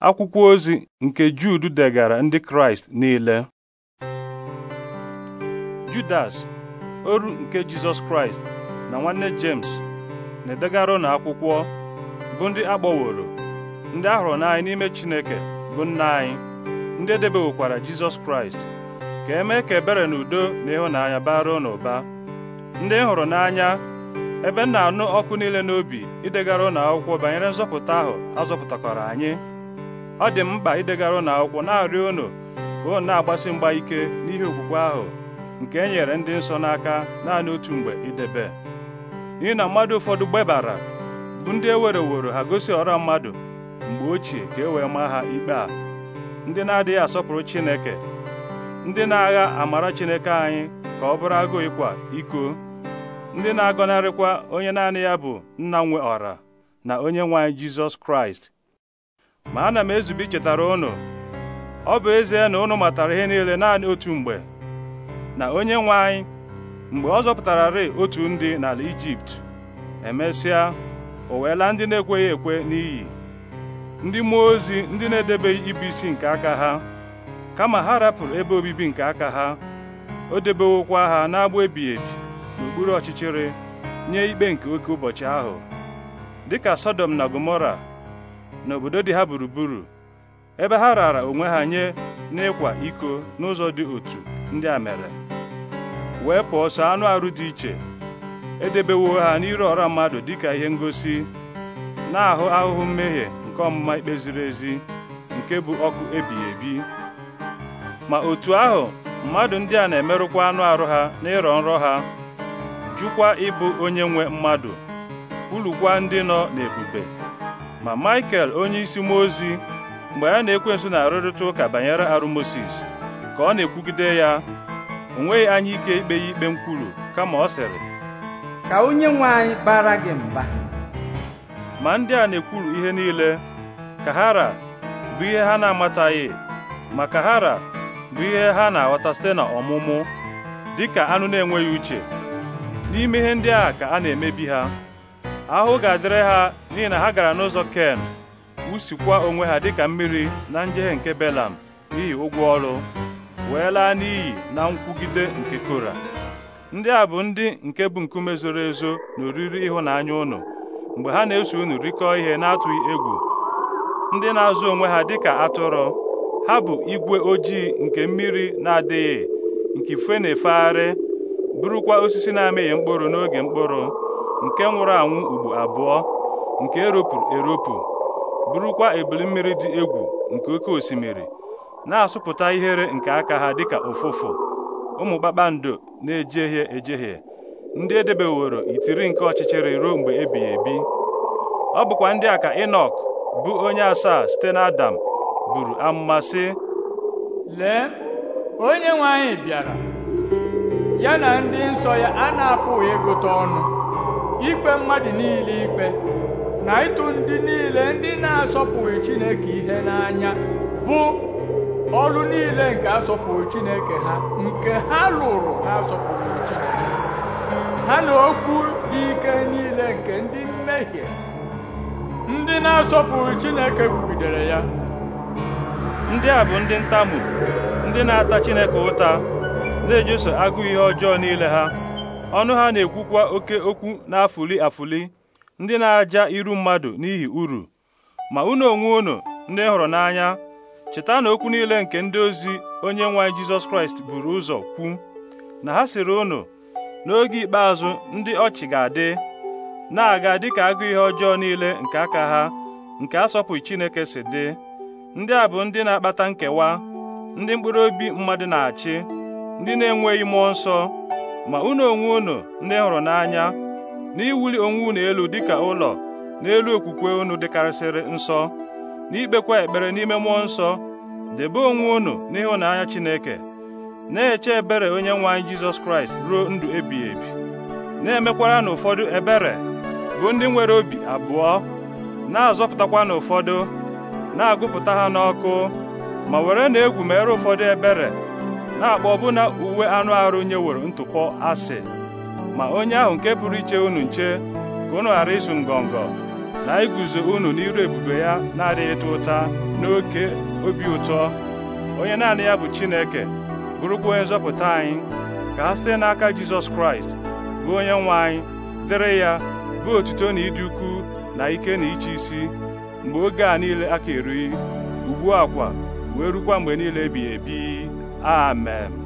akwụkwọ ozi nke judu degara ndị Kraịst niile Judas oru nke Jizọs Kraịst na nwanne jemes na-edegara ụnụ akwụkwọ bụ ndị akpọworo ndị ahụrụ n'anyị n'ime Chineke bụ nna anyị ndị edebewokwara Jizọs Kraịst ka emee ka ebere na udo na ịhụnanya bara ụnụ ụba ndị e hụrụ n'anya ebe m na-anụ ọkụ niile n'obi idegara ụnụ akwụkwọ banyere nzọpụta ahụ azọpụtakwara anyị ọ dị m mkpa idegara unu akwụkwọ na-arịọ unu ka unu na-agbasi mgba ike n'ihe okwukwe ahụ nke e nyere ndị nsọ n'aka naanị otu mgbe idebe n'ihi na mmadụ ụfọdụ gbebara bụ ndị ewereworo ha gosi ọra mmadụ mgbe ochie ka e wee maa ha ikpe a ndị na-adịghị asọpụrụ Chineke ndị na-agha amara Chineke anyị ka ọ bụrụ agụụ ịkwa iko ndị na-agọnarịkwa onye naanị ya bụ nna nwe ọra na onye nwe Jizọs Kraịst ma ana m ezube ichetara unu ọ bụ ezie na unu matara ihe niile naanị otu mgbe na onye nwe anyị mgbe ọ zọpụtararị otu ndị n'ala Ijipt emesịa o weela ndị na-ekweghị ekwe n'iyi ndị mmụọ ozi ndị na-edebeghị ibu isi nke aka ha kama ha rapụrụ ebe obibi nke aka ha o debewokwa ha n'agbụ ebighị ebi n'okpuru ọchịchịrị nye ikpe nke oke ụbọchị ahụ dịka Sodom na Gomora n'obodo dị ha gburugburu ebe ha rara onwe ha nye n'ịkwa iko n'ụzọ dị otu ndị a mere wee pụọ sọ anụ arụ dị iche edebewo ha n'ire ọra mmadụ dịka ihe ngosi na-ahụ ahụhụ mmehie nke ọmụma ikpe ziri ezi nke bụ ọkụ ebighị ebi ma otu ahụ mmadụ ndị a na-emerụkwa anụ arụ ha na ịrọ nrọ ha jụkwa ịbụ onye nwe mmadụ kwulukwa ndị nọ n'ebube ma Michael onye isi mmụọ ozi mgbe ya na ekwensu na-arụrịta ụka banyere arụ Mosis ka ọ na-ekwugide ya o nweghị anya ike ikpe ya ikpe nkwulu kama ọ sịrị ka onye nwe anyị bara gị mba ma ndị a na-ekwuru ihe niile ka hara bụ ihe ha na-amataghị ma ka hara bụ ihe ha na-aghọta site na ọmụmụ ka anụ na-enweghị uche n'ime ihe ndị a ka a na-emebi ha ahụ ga-adịrị ha n'ihi na ha gara n'ụzọ ken wusikwa onwe ha dịka mmiri na njehie nke belam n'ihi ụgwọ ọrụ wee laa n'iyi na nkwugide nke kora ndị a bụ ndị nke bụ nkume zoro ezo na oriri ịhụnanya ụnụ mgbe ha na-eso unu rikọọ ihe na-atụghị egwu ndị na-azụ onwe ha dịka atụrụ ha bụ igwe ojii nke mmiri na-adịghị nke ife na-efegharị bụrụkwa osisi na-amịghị mkpụrụ n'oge mkpụrụ nke nwụrụ anwụ ugbo abụọ nke eropụrụ eropụ bụrụkwa ebili mmiri dị egwu nke oke osimiri na-asụpụta ihere nke aka ha dịka ụfụfụ ụmụ kpakpando na-ejehie ejehie ndị edebeworo itiri nke ọchịchịrị ruo mgbe ebighị ebi ọ bụkwa ndị a ka Enọk bụ onye asaa site na Adam buru amụma sị lee onye nwe anyị bịara ya na ndị nsọ ya a na-apụghị ịgụta ọnụ ikpe mmadụ niile ikpe na ịtụ ndị niile ndị na-asọpụghị Chineke ihe n'anya bụ ọrụ niile nke asọpụghị Chineke ha nke ha lụrụ na-asọpụghị Chineke ha na okwu dị ike niile nke ndị mmehie ndị na-asọpụghị Chineke kwugidere ya ndị a bụ ndị ntamu ndị na-ata Chineke ụta na-ejeso agụụ ihe ọjọọ niile ha ọnụ ha na-ekwukwa oke okwu na-afụli afụli ndị na-aja iru mmadụ n'ihi uru ma unu onwe unu ndị hụrụ n'anya cheta na okwu niile nke ndị ozi onye nwe anyị Jizọs Kraịst buru ụzọ kwu na ha sịrị unu n'oge ikpeazụ ndị ọchị ga-adị na-aga dịka agụ ihe ọjọọ niile nke aka ha nke asọpụghị Chineke si dị ndị a bụ ndị na-akpata nkewa ndị mkpụrụ obi mmadụ na-achị ndị na-enweghị mmụọ nsọ ma unu onwe unu ndị hụrụ n'anya n'iwuli onwe unu elu dịka ụlọ n'elu okwukwe unu dịkarịsịrị nsọ n'ikpekwa ekpere n'ime mmụọ nsọ debe onwe unu n'ịhụnanya Chineke na-eche ebere onye nwe anyị Jizọs Kraịst ruo ndụ ebighị ebi na-emekwara na ụfọdụ ebere bụ ndị nwere obi abụọ na-azọpụtakwa na ụfọdụ na-agụpụta ha n'ọkụ ma were na egwu mere ụfọdụ ebere na-akpọ ọbụna uwe anụ arụ nyeworo ntụpọ asị ma onye ahụ nke pụrụ iche unu nche ka ụnụ ghara ịsụ ngọngọ na iguzo unu n'iru ebube ya na-adịghịta ụta n'oke obi ụtọ onye naanị ya bụ Chineke bụrụkwa onye nzọpụta anyị ka ha site n'aka Jizọs Kraịst bụ onye nwe anyị dịrị ya bụ otuto na ịdị ukwu na ike na iche isi mgbe oge a niile aka erughị ugbu a kwa wee rukwa mgbe niile ebighị ebi Amen.